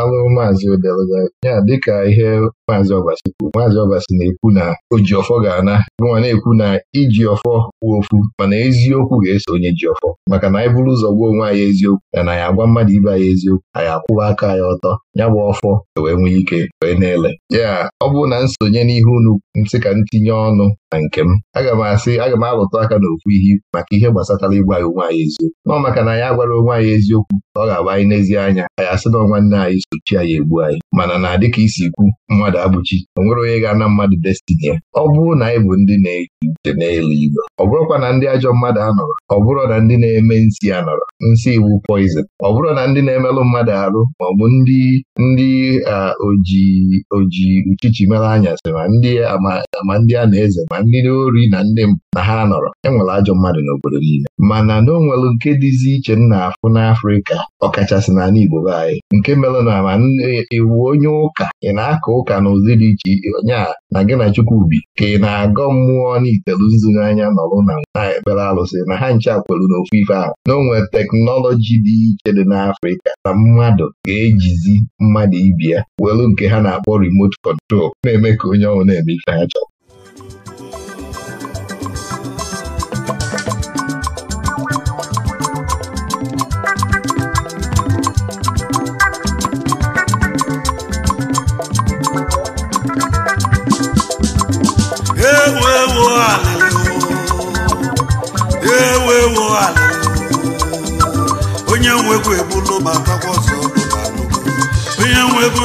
alụ maazị odelga ya dịka ihe maazị ọbasi kwuru maazị ọbasi na-ekwu na oji ọfọ ga-ana nwa na-ekwu na iji ọfọ kwuo ofu mana eziokwu ga-eso onye ji ọfọ maka na anyị bụrụ ụzọ gwa onwe anyị eziokwu ya na anyị agwa mmadụ ibe anyị eziokwu anyị akwụwa aka ya ọtọ ya bụ ọfọ e wee nwee ike wee na-ele ya ọ bụrụ na nsonye n'ihe unu nsị ka ntinye ọnụ na nke m aga m asị aga m alụtụ aka n'okwu ihe maka ihe gbasatara ịgwa anyị onwe anyị echi nọ maka na ya gwara onwe anyị eziokwu ka ọ ga-agba anyị n'ezie anya anyị asị na nwanne anyị sochi anyị egbu anyị mana na dịka isi ikwu mmadụ abụchi o nwere onye ga-ana mmadụ destini ya ọ bụrụ na anyị bụ ndị na-eji uche n'elu igwe ọ bụrụkwa na ndị ajọ mmadụ anọrọ ọ bụrụ na ndị na-eme nsi anọrọ nsị iwu poizin ọ bụrụ na ndị na-emelụ mmadụ arụ ma ọ bụ ndị ndị oji oji uchichi mere anyasị ma ndị ma ndị a na-eze ma ndị ori na ndị na ha nọrọ enwere ajọ mmadụ n'obodo niile mana na o nke dịzi iche m na-afụ n'Afrịka ọkachasị na Igbo be anyị nke mere na ma iwu onye ụka ị na akọ ụka n'ụdị dị iche nya na gị na Chukwubi ka ị na-agọ mmụọ n'itelu nzu n'anya nọrụ na ekpere alụsị na ha nche akwelu n'ofu ife ahụ na onwe teknọlọji dị iche dị n'Afrịka na mmadụ ga-ejizi mmadụ ibi ya welu nke ha na-akpọ remote kọntrol na-eme ka onye ọnwụ na-eme ife ha chọrọ onye nwegwu egbulu matakwa ọzọ onye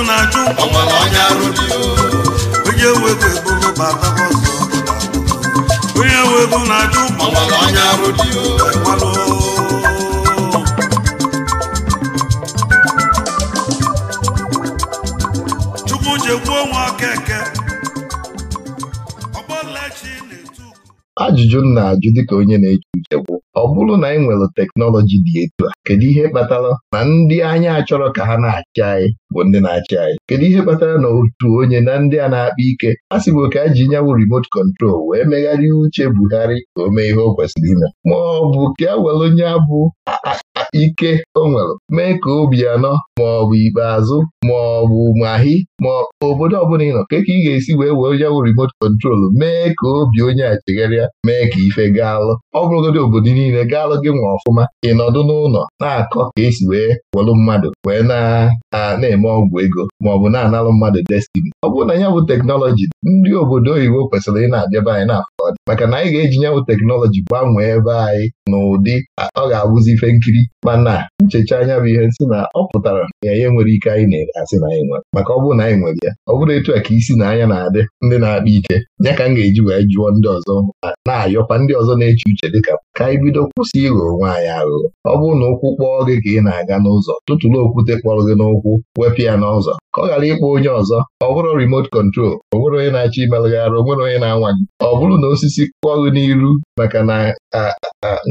na-ajụ onye nwegwu egbulu matakwa ọzọ onye na-ajụ ajụjụ m na-ajụ dịka onye na eche ọ bụrụ na ị e nwere teknọlọji dị etu a kedu ihe kpatara na ndị anyị achọrọ ka ha na-achị anyị bụ ndị na-achị anyị kedu ihe kpatara na otu onye na ndị a na-akpa ike a bụ ka a e ji nyawu remote control wee megharịa uche Buhari ka o ihe o kwesịrị ime ma ọ bụ ka e were onye abụ ike o nwere mee ka obi anọ ma ọ ikpeazụ ma ọ bụ mahi ma obodo ọbụla ị nọ ka ị ga-esi wee were ya remote control mee ka obi onye a chegharịa mee ka ife gaalụ ọ bụrụgodị obodo niile gaalụ gị nwa ọfụma ị nọdụ n'ụlọ na-akọ ka esi wee welụ mmadụ wee na-eme ọgwụ ego ma ọ bụ na-analụ mmadụ destini ọ bụrụ na ya bụ teknọlọji ndị obodo oyibo kwesịrị ị na-abịaba anyị na-afọ maka na anyị ga-eji nyanwụ teknọlọji gbanwee ebe anyị n'ụdị ọ ga-abụzi ife nkiri mana nchecha anya bụ ihe nsị na ọ pụtara ya ihe nwere ike anyị na-ere asị na anyị nwere maka ọ bụrụ na anyị nwere ya ọ bụrụ etu a ka isi na anya na-adị ndị na-akpa ike ya ka m ga-eji wee jụọ ndị ọzọ na-ayọkwa ndị ọzọ na-eche uche dịka ka anyị bido kwụsị ịghọ onwe anyị aghụghọ ọ bụrụ na ụkwụ kpọọ gị ka ị na-aga n'ụzọ tụtụrụ okwute kpọrọ gị n'ụkwụ wepụ ya n'ụzọ ka ọ ghara ịkpọ onye ọzọ ọ bụrụ remote kọntrol o nwere onye na-achọ imelụgharị o nwere onye na-anwa gị ọ bụrụ na osisi kpọọ gị n'iru maka na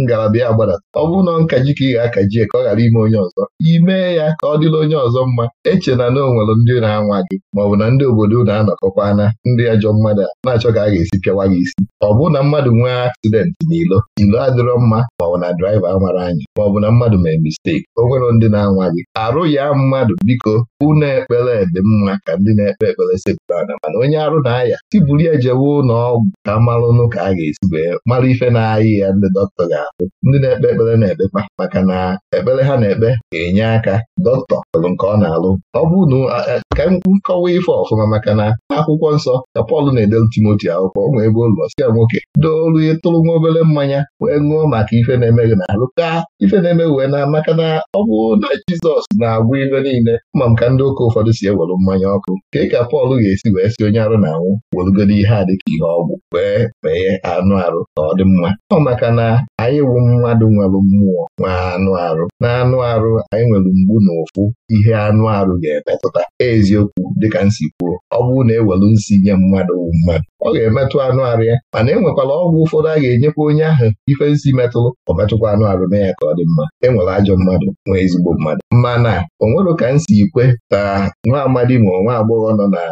ngalaba ya gbadata ọ bụrụ na ọ nkaji ka ị ga-akaji ka ọ ghara ime onye ọzọ imee ya ka ọ dịla onye ọzọ mma eche iche na na ndị na anwa gị maọbụ na ndị obodo na-anọkọkwa anọkọkwana ndị ajọ mmadụ na-achọ ka a ga-esi pịawa gị isi ọ bụrụ na mmadụ nwee aksidenti n'ilo ilo adịrọ mma maọbụ na draiva amara anyị maọbụ na mmadụ mee misteki o nwere ndị na-anwa gị arụ ya mmadụ biko ụnọ ekpere dị mma ka ndị na-ekpe ekpere sepụrụ ana mana onye arụ na-aya tiburu ya jewe ụlọ ọgwụ ka malụnụ ka a ga-esi wee mara ife na-ayị ya ndị dọkịta ga-ahụ ndị na-ekpe ekpere na-ekpekpa maka na ekpere ha na-ekpe ga-enye aka dọkịta nke ọ na-alụ ọ ọ bụ na ka m kọwa ife ọfụma maka na akwụkwọ nsọ ka Pọl na-edelu Timoti akwụkwọ ọ nwe ebe ụlọ sika nwoke doolu ịtụrụ nwa obere mmanya wee ṅụọ maka ife na-emeghị na ka ife na-eme wee na maka na ọ bụ na Jizọs na-agwụ ife niile ma m ka ndị ụka ụfọdụ si ewere mmanya ọkụ ka ị ka Pọl ga-esi wee si onye arụ na-anwụ werugoro ihe a dịka ihe ọgwụ wee mee anụ arụ ka ọ dị mma ọ maka na anyị wụ mmadụ nwere mmụọ nwe anụ arụ na anụ arụ anyị nwere mgbu na ụfụ ihe anụ arụ ga-emetụta eziokwu dịka nsi kwuo ọ bụrụ na ewelu nsi nye mmadụ wụ mmadụ ọ ga-emetụ anụ arụ ya mana e nwekwara ọgwụ ụfọdụ a ga-enyekwa onye ahụ ife nsi metụrụ ọ metụkwa anụ arụ na ya ka ọ dị mma e nwere ajọ mmadụ nwee ezigbo mmadụ mana o nwere ka m si kwe ka nwa amadi ma nwa agbọghọ nọ na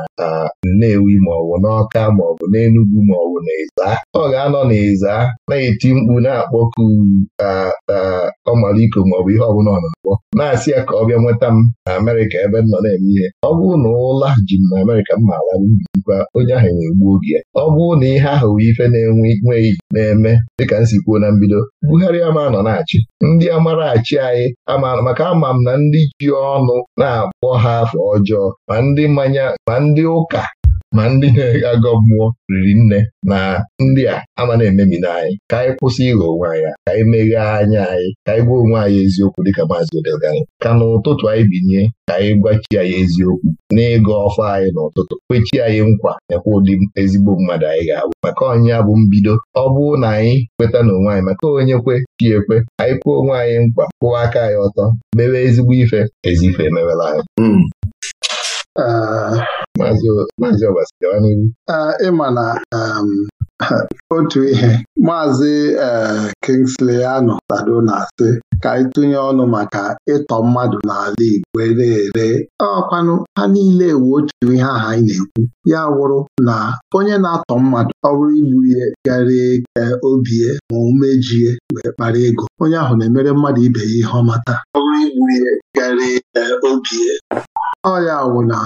Nnewi maọbụ n'Ọka maọbụ n'Enugwu maọbụ n'Ịza ọ ga-anọ n'Ịza na-eti mkpu na-akpọ Okwu ugwu ọ iko maọbụ ihe ọbụla ọ na-akpọ na-asị ya ka ọ bịa nweta m na Amerịka ebe m nọ na-eme ihe ọ bụrụ na ụla ji m na Amerịka m maara bụbikwa onye ahụ na-egbu oge ya ọ bụrụ na ihe ahụ bụ ife na-enwe na-eme dịka m si kwuo na mbido Buhari ama nọ na-achị ndị amarachi anyị maka ama m na ndị ji ọnụ na-akpọ ha afọ ọjọọ ma ndị mmanya ma ndị ụka ma ndị na-agọ mmụọ riri nne na ndị a ama na-ememina anyị ka anyị kwụsị ịghọ onwe anyị ka anyị meghee anya anyị ka anyị gwa onwe anyị eziokwu dịka maazị odelgari ka n'ụtụtụ anyị binye ka anyị gwachi anyị eziokwu n'ịgọ ọfọ anyị n'ụtụtụ kwechi anyị nkwa ekwe ụdị ezigbo mmadụ anyị ga-abụ maka ọnya bụ mbido ọ bụrụ na anyị kweta n'onwe anyị maka onye kwe chi ekwe anyị kwuo onwe anyị nkwa kwụwa aka anyị ọtọ mewe ezigbo ife ezi ife emewela anyị hmm. ah. maazị Obasi hmm. ịma na otu ihe maazị eh, Kingsley anọ tado na-asị ka anyị tụnye ọnụ maka ịtọ mmadụ n'ala Igbo na-ere ọkwanụ ha niile ewu otu ihe aha anyị na-ekwu ya wụrụ na onye na-atọ mmadụ ọ bụrụ igbu ya garie ka obie ma omejie wee kpara ego onye ahụ na-emere mmadụ ibe ya ihe ọmata ọ bụrụ igbu ihe garie ka obie ọ ya wụ na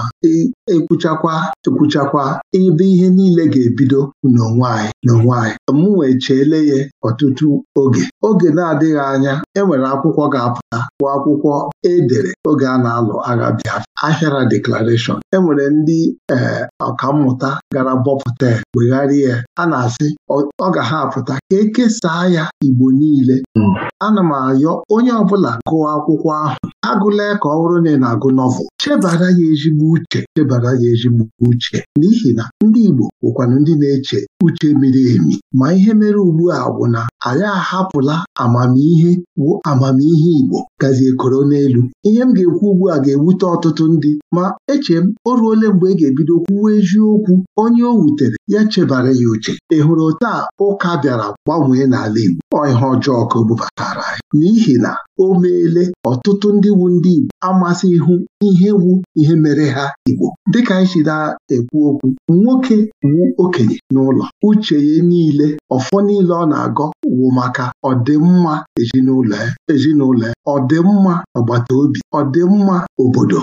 ekwuchakwa ekwuchakwa ebe ihe niile ga-ebido n'onwe anyị n'onwe anyị m wee cheele ya ọtụtụ oge oge na-adịghị anya enwere akwụkwọ ga-apụta bụ akwụkwọ edere oge a na-alụ agha Biafra ahịara deklarashọn enwere ndị ee ọkammụta gara bọpụta wegharịa ya a na-asị ọ ga ha apụta ka ekesaa ya Igbo niile hmm. ana m ayọ onye ọbụla gụọ akwụkwọ ahụ agụla ka ọ bụrụ na ị na-agụ nọvel chebara ya ezigbo uche uche chebara ya ezimụka uche n'ihi na ndị Igbo na ndị na-eche uche miri emi ma ihe mere ugbu a bụ na anyị ahapụla amamihe bụ amamihe Igbo gazie koro n'elu ihe m ga-ekwu ugbu a ga-ewute ọtụtụ ndị ma eche m o ruole mgbe ị e ga-ebido kwuwa eziokwu onye o wutere ya chebara ya uche ị hụrụ taa ụka bịara gbanwee n'ala Igbo ihe ọjọọ ka o bubatara anyị n'ihi na o meele ọtụtụ ndị wu ndị Igbo amasị ihu ihe wu ihe mere ha Igbo dịka anyị si na-ekwu okwu nwoke wu okenye n'ụlọ uche ya niile ọfọ niile ọ na-agọ wụ maka ọdịmma ezinụlọ ezinụlọ ọdịmma agbata obi ọdịmma obodo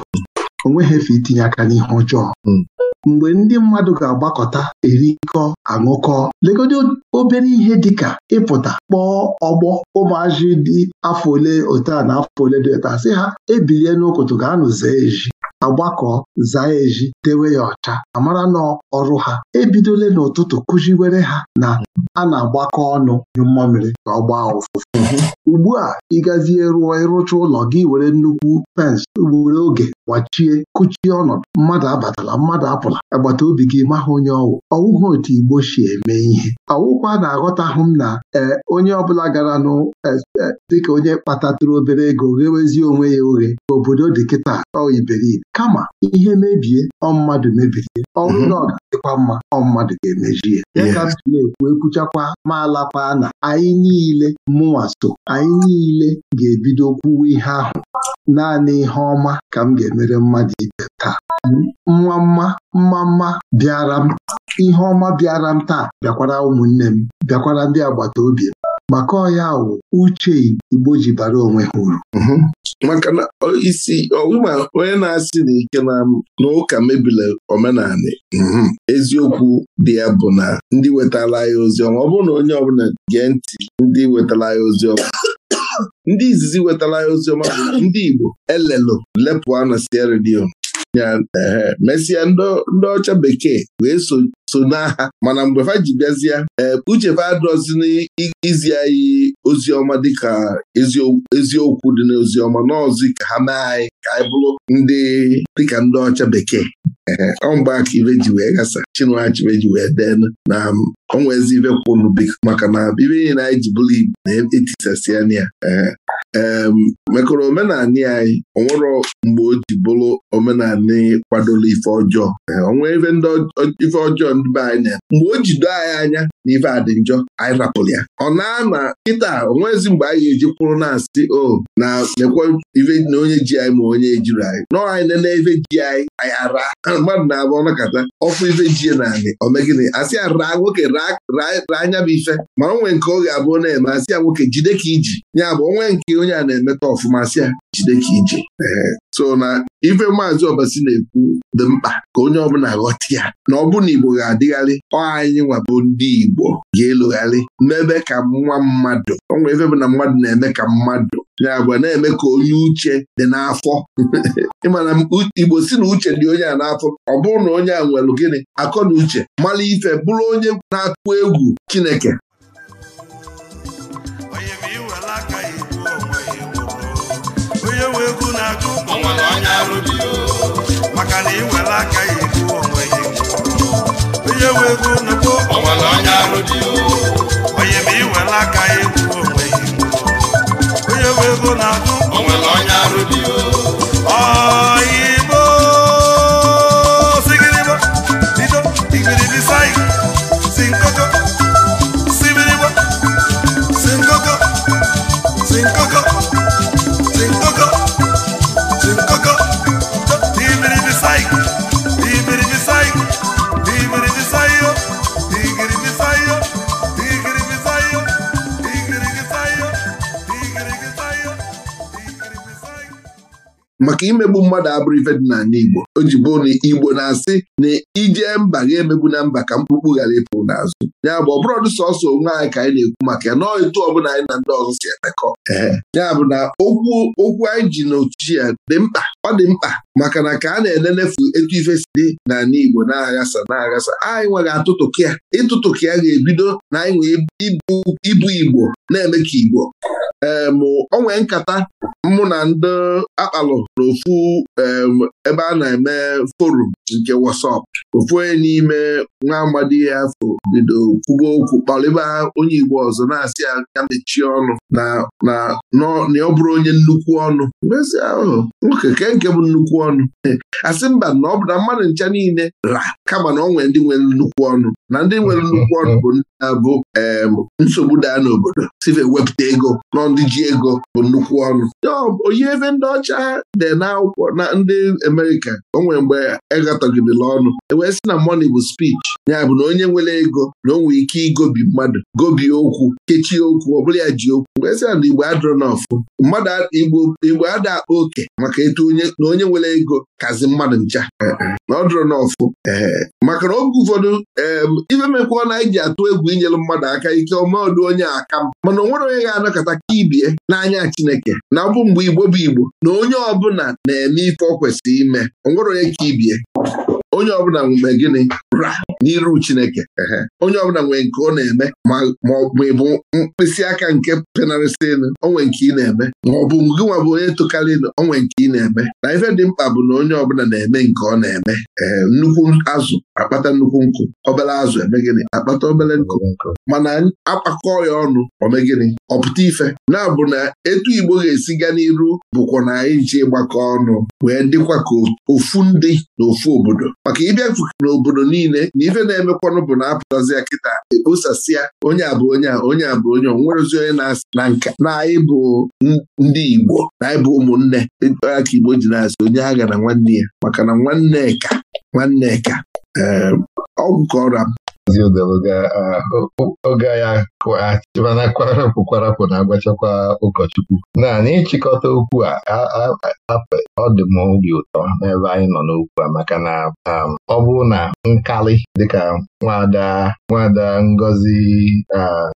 o nweghị efe itinye aka n'ihe ọjọọ hmm. mgbe ndị mmadụ ga-agbakọta erikọ aṅụkọ lekọta obere ihe dịka ịpụta kpọọ ọgbọ ụmụazị dị afọ ole otu na afọ ole dị ota a ha ebilie n'ụkụtụ ga-anụ zee eji agbakọ zaa eji dewe ya ọcha amara na ọrụ ha ebidole n'ụtụtụ kụziwere ha na a na-agbakọ ọnụ nyụ mmamịrị ka ọ gbaa ụfụfụ ugbu a ịgazie rụọ ịrụcha ụlọ gị were nnukwu pensị were oge gbachie kụchie ọnọdụ mmadụ abatala mmadụ apụla agbata obi gị maha onye ọwụ ọwụghị otu igbo si eme ihe ọwụkwa na-aghọtahụ m na ee onye ọbụla gara nụ e, e, dịka onye kpatatụrụ obere ego ghewezie onwe ya oghe obodo dị kịta ọ iberibe kama ihe mebie ọ mmadụ mebiri ọnwụ mhm. na ọ mma ọ mmadụ ga-emejie ya ka m na-ekwu ekwuchakwa ma alakwa na anyị niile mụnwa so anyị niile ga-ebido kwuwe ihe ahụ naanị ihe ọma ka m ga-emere mmadụ ibe taa mma mma mma mma bịara m ihe ọma bịara m taa bịakwara ụmụnne m bịakwara ndị agbata obi m maka ọya wụ uche Igbo ji bara onwe ha uru mhm. maka na isi ọwụma onye na-asị na ike na ụka mebila omenala mhm. eziokwu dị ya bụ na ndị wetara ya oziọma ọ bụrụ na onye ọbụla gee ntị ndị wetara ya oziọma ndị izizi wetara ya oziọma bụ ndị Igbo elelo lepụ na sierra Eh, mesịa ndị ọcha bekee wee so n'agha mana mgbe fa ji bịazie eh, uchefe adọzi n'izi anyị ozi dịka eziokwu dị n'ozi ọma n'ọzi ka ha mee anyị ka anyị bụrụ ndị dịka ndị ọcha bekee eh, ọmgba aka ibe ji wee gasa chinuachibe ji wee denu na onwezi ibe kwunu maka na ibe niile anyị ji bụrụ igbo na etisasịa ya mekọrọ omenanị anyị onwere mgbe o ji bụrụ omenanị kwadoro ife ọjọọ onwe ife ife ọjọọ ndị be anyị na mgbe o jido anyị anya na ife adị njọ anyị rapụrụ ya ọ na-ama kịta onwezi mgbe anyị eji kwụrụ na-asị o na mekwa ife na onye ji anyị ma onye ejiri anyị nọọ anyị nene ife ji anyị anyị ara mmadụ na-abụ ọnakọta ọfụ ife ji naanị omegịnị asị ya raa nwoke raa anya bụ ife ma onwe nke ọ ga-abụ na-eme asị ya nwoke jide ka iji ya bụ onwe nke onye a na-emeta ọfụma si ya jide ka ije so na ife maazị ọbasi na-ekwu dị mkpa ka onye ọbụla ghọta ya na ọ bụ na Igbo ga-adịgharị ọ anyị nwabụ ndị Igbo ga elugharị n'ebe ka nwa mmadụ ọ ife bụ na mmadụ na-eme ka mmadụ ya bụ na-eme ka onye uche dị n'afọ ịmana Igbo si na uche dị onye a n'afọ ọ bụrụ na onye a nwere gịnị akọ na uche mara ife bụrụ onye na akụ egwu Chineke na-ajụ onye arụ maka na iwere aka ya egbu onwe onye wee nnukwu ọnwere onye ma aka onwe onye na-ajụ maka imegbu mmadụ abụrụ ife dị n'ala Igbo o ji bụ na Igbo na-asị na ije mba ga-emegbu na mba ka mkpukpu ghara ịpụ n'azụ ya bụ ọbụrọdụ sọsọ onwe anyị ka anyị na-ekwu maka ya nọọ etu ọbụla anyị na ndị ọzọ si emekọ ya bụ na okwu okwu anyị ji n'otu ya dị mkpa ọ dị mkpa maka na ka a na-elenefu etu ife si dị n'ala Igbo na-aghasa na-aghasa anyị nwere atụtụkụ ya ịtụtụkụ ya ga-ebido na anyị nwee ibu Igbo na-eme ka Igbo ee ma ọ nwee nkata mụ na ndị akpalụ n'ofu ebe a na-eme forum nke WhatsApp ofu onye n'ime nwa amadi ya afọ bido kwuba okwu kpalịba onye Igbo ọzọ na-asị ya mechie ọnụ na na ọ bụrụ onye nnukwu ọnụ mezi ahụ nwoke ke nke bụ nnukwu ọnụ asị mba na ọ bụ na mmadụ ncha niile ra kama na ọ nwere ndị nwere nnukwu ọnụ na ndị nwere nnukwu ọnụ bụ ndị na-abụ nsogbu daa n'obodo si wepụta ego n'ọ ndị ji ego bụ nnukwu ọnụ oyi ebe ndị ọcha dị n'akwụkwọ na ndị Amerịka o nwere mgbe egatọgidela ọnụ ewee sị na money bụ speech ya bụ na onye nwere ego na o nwere ike igobi mmadụ gobi okwu kechie okwu ọ bụla ya ji okwu wee sị na Igbo adịrọ n'ọfụ mmadụ Igbo ada akpa oke maka etu onye na onye nwere ego kazi mmadụ ncha na ọ maka na oge ụfọdụ ife mekwa na anyị ji atụ egwu inyelụ mmadụ aka ike ọma ọdụ onye aka m mana o nwere onye ga-anọkọta ka ibie n'anya Chineke na ọ bụ mgbe Igbo bụ Igbo na onye ọbụla na-eme ife ọ kwesịrị ime ọ nwere onye ka ibie onye ọbụla mgbe gịnị raa! n'iru Chineke onye ọbụla nwere nke ọ na-eme ma ị bụ mkpịsị aka nke penarịsịnụ onwe nke ị na-eme ma ọ bụ gị nwa bụ onye tokarịnụ onwe nke ị na-eme na ife dị mkpa bụ na onye ọbụla na-eme nke ọ na-eme nnukwu azụ akpata nnukwu nkụ obele azụ eme gịnị akpata obele nkụ mana akpakọ ya ọnụ ome gịnị ọpụta ife na-abụ na etu Igbo ga-esi gaa n'iru bụkwa na anyị ji gbakọ ọnụ wee dịkwa ka ofu ndị na ofu obodo maka ịbịa n'obodo niile ife na-emekwanụ bụ na apụtazie kịta ebusasịa onye a bụ onye a onye a bụ onye onwerozi onye na-asị na nka anyị bụ ndị Igbo na anyị bụ ụmụnne aka Igbo ji na-asị onye ha ga na nwanne ya maka na nwanne ka nwanne ka ehm, ọgwụ ka ọra m oge ya na kwarapụ na-agbachakwa ụkọchukwu naanị ịchịkọta okwu a ọ dị m obi ụtọ n'ebe anyị nọ n'okwu a maka na ọ um, bụ na nkalị dịka nwada nwada Ngozi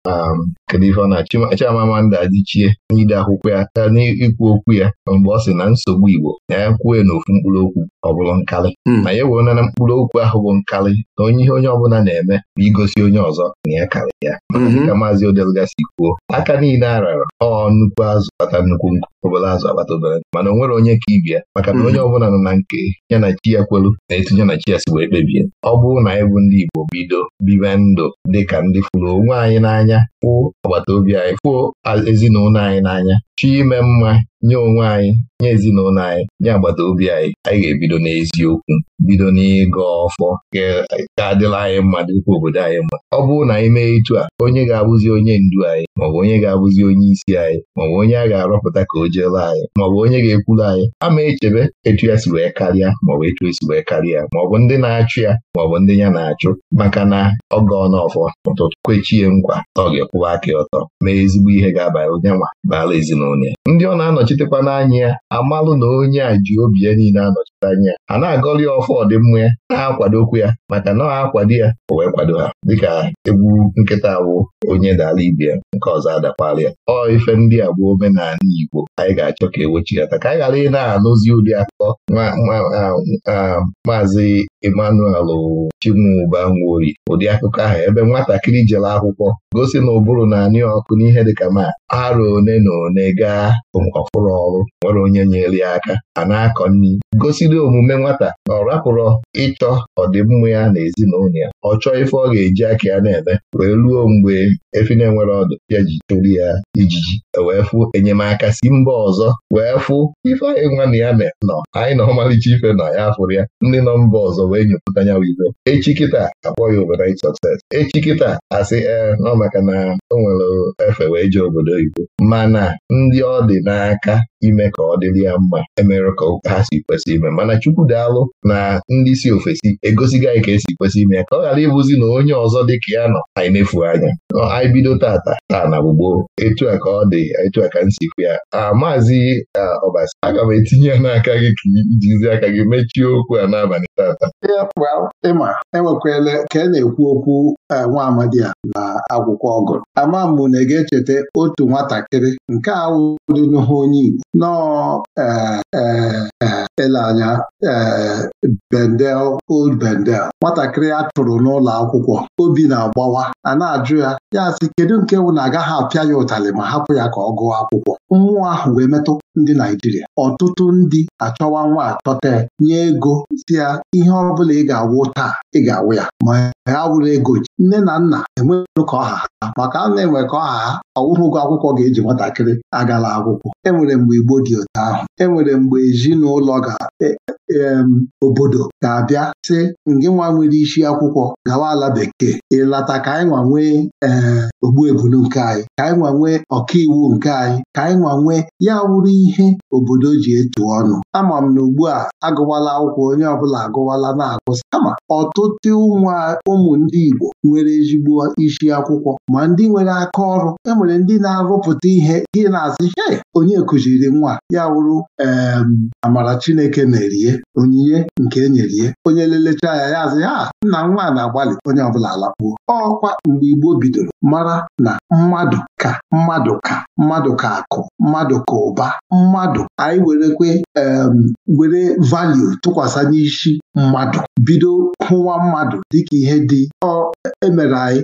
um, Kedivona Chimamanda Adichie n'ide akwụkwọ ya n'ikwu okwu ya mgbe ọ sị na nsogbu Igbo na ya kwue n'ofu mkpụrụ okwu ọ bụrụ nkali. ma ya wee na mkpụrụ okwu ahụ bụ nkali na onye ihe onye ọbụla na-eme bụ igosi onye ọzọ na ya mhm. karị ya maazị Odelgasi kwuo aka niile a ọ nnukwu azụ kpata nnukwu nkụ obere azụ akpata obere mana o nwere onye ka ibia maka na onye mhm. ọbụla nọ na nke ya na chi ya kwelu na etu ya na chi ya si wee kpebie ọ bụrụ na anyị bụ ndị Igbo bido bibe ndụ dịka ndị fụrụ onwe anyị n'anya fụ agbata obi anyị fụo ezinụlọ anyị n'anya chi ime mma nye onwe anyị nye ezinụlọ anyị nye agbata obi anyị anyị ga-ebido n'eziokwu bido n'ịgọ ọfọ ka adịla anyị mma dịkwa obodo anyị mma ọ bụrụ na anyị mee etu a onye ga-abụzi onye ndu anyị maọbụ onye ga-abụzi onye isi anyị maọbụ onye a ga-arọpụta ka o jeela anyị maọbụ onye ga-ekwuru anyị ama echebe etu ya si wee karịa maọbụ etu esi wee karịa maọbụ ndị na-achụ ya maọbụ ndị ya na-achụ maka na ọ gọọ n'ọfọ ụtụtụ kwechie nkwa ọ ga-ekwụwa aka ọtọ mee ezigbo ihe ga-abara onye nwa ezinụlọ ya ndị ọ na-anọchi anọchitekwa n'anya ya amalụ na onye a ji obi ya niile anọchite anya a na-agọli ya ọfọ ọdịmma ya na-akwadokwu ya maka na ọ akwado ya o wee kwado ha dịka egwu nkịta awụ onye dala ibe ya nke ọzọ adakwala ya ọ ife ndị a bụ omenala Igbo anyị ga-achọ ka ewechighata ka anyị ghara ị na-anụzi ụdị akụkọ maazị Emmanuel Chimuba Nwori ụdị akụkọ ahụ ebe nwatakịrị jere akwụkwọ gosi na ụbụrụ na-anị ọkụ n'ihe dịka ma arụ one na one gaa ọfụrụ ọrụ nwere onye nyere ya aka a na-akọ nri gosiri omume nwata na ọ rapụrụ ịchọ ọdịmma ya na ezinụlọ ya ọ chọọ ife ọ ga-eji aka ya na-eme wee ruo mgbe efi na-enwere ọdụ ya ji chụrụ ya ijiji e wee fụ enyemaka si mba ọzọ wee fụ ife anyị nwa na ya me nọ anyị na ọmalịcha ife na ya fụrụ ya ndị nọ mba ọzọ wee nyepụta ya wive echi kịta akpọ ya overnight sọkses. echi kịta asị ee eh, nọ maka na o nwere efe wee jee obodo mana ndị ọ dị n'aka ime ka ọ dịrị ya mma emere ka ha si kwesị ime mana Chukwu daalụ na ndị si ofesi egosigo anyị ka esi kwesị ime ya ka ọ ghara ịbụzi na onye ọzọ dị ka ya nọ anyị na-efu anya anyị bido tata taa na gbogbo etu a ka ọ dị etu a ka m sikwu ya maazị ọbasi aga m etinye ya n'aka gị ka ijizi aka gị mechie okwu a n'abalị tata ịma enwekwala ka a e na-ekwu okwu e, nwa amadi a na akwụkwọ ọgụ ama mgbe na echeta otu nwatakịrị nke ahụ onye Igbo nọọ ele anya eh, Bendel Old Bendel nwatakịrị a chụrụ n'ụlọ akwụkwọ obi na-agbawa a na-ajụ ya ya sị kedu nke wụ na agaghị apịa ya ụtalị ma hapụ ya ka ọ gụọ akwụkwọ mmụọ ahụ wee metụ ndị Naijiria ọtụtụ ndị achọwa nwa achọta nye ego si ya ihe ọ bụla ị ga-awụ taa ị ga-awụ ya ma ha wụrụ ego nne na nna enweghị ka ọha ha maka a na-enwe ka ọha ha ọwụghị ụgwọ akwụkwọ ga-eji nwatakịrị agala akwụkwọ e nwere mgbe Igbo dị otu ahụ Enwere nwere mgbe ezinụlọ ga obodo ga-abịa sị ngị nwa nwere isi akwụkwọ gawa ala bekee ịlata ka anyị nwa nwee eh, ogbuebulu nke anyị ka anyị nwa nwee ọkaiwu nke anyị ka anyị nwa nwee ya wụrụ ihe obodo ji etu ọnụ ama m na ugbu a agụwala akwụkwọ onye ọbụla agụwala na-agụsị ama ọtụtụ ụmụ ndị Igbo nwere ezigbo isi akwụkwọ ma ndị nwere aka ọrụ e nwere ndị na-arụpụta ihe gị na-asị he onye kụziri nwa ya wụrụ Amara Chineke na-erie onyinye nke enyerie onye lelecha ya ya azụ ah, ya nna nwa na-agbalị onye ọbụla alakpuo ọkwa mgbe Igbo bidoro mara na mmadụ ka mmadụ ka mmadụ ka akụ mmadụ ka ụba mmadụ anyị werekwe were value tụkwasị n'isi mmadụ bido hụwa mmadụ dịka ihe dị ọ emere anyị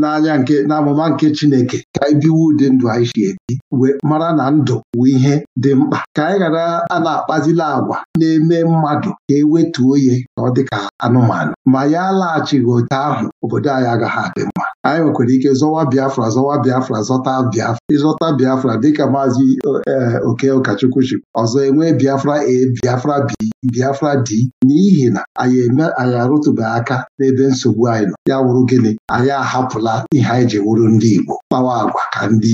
n'anya nke n'amụma nke Chineke ka anyị biwo ụdị ndụ anyị si ebi wee mara na ndụ bụ ihe dị mkpa ka anyị ghara a na-akpazi ejila agwa na-eme mmadụ ka e wetuo ya ka ọ dịka anụmanụ ma ya laghachighị otu ahụ obodo anyị agaghị adị mma anyị nwekwara ike zọwa Biafra zọwa Biafra zọta Biafra ịzọta Biafra dịka maazị e, oke ụkọchukwu chi ọzọ enwee Biafra e Biafra b Biafra d n'ihi na anyị anyị arụtụbeghị aka n'ebe nsogbu anyị nọ ya wụrụ gịnị anyị ahapụla ihe anyị ji wụrụ ndị Igbo kpawa agwa ka ndị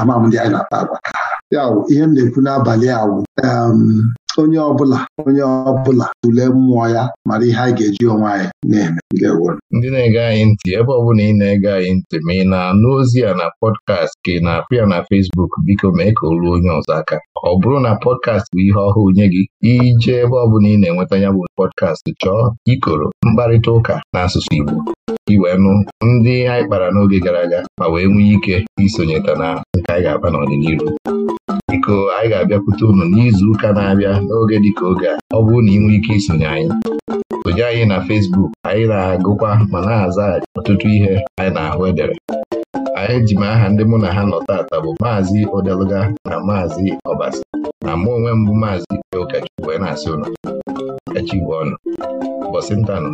amam ndị anyị na-akpa agwa ya ihe m na-ekwu n'abalị awụ onye ọbụla onye ọbụla tulee mmụọ ya mara ihe anyị ga-eji onwe anyị na-eme ndị na-ege anyị ntị ebe ọ ị na-ege anyị ntị ma ị na-anụ ozi a na pọdkast ka ị na-apụ ya na fesbuk biko mee ka o ruo onye ọzọ aka ọ bụrụ na pọdkast bụ ihe ọhụụ nye gị ije ebe ọ ị na-enweta ya bụ pọdkast chọọ ikoro mkparịta ụka n'asụsụ Igbo iwee nụ ndị anyị kpara n'oge gara aga ma wee nwee ike isonyeta na nke anyị ga-akpa n'ọdịnihu biko anyị ga-abịakwute unu n'izuụka na-abịa n'oge dịka oge a ọ bụrụ na ị nwee ike isonye anyị sonye anyị na Fesbuk anyị na-agụkwa ma na-aza ọtụtụ ihe anyị na-ahụ edere anyị ji m aha ndị mụ na ha nọ taata bụ maazị Odeluga na maazị Ọbasi na mụ onwe mbụ maazị Ike Ụkọchukwu wee na-asị echi bụ ọnụ ụbọchị ntanụ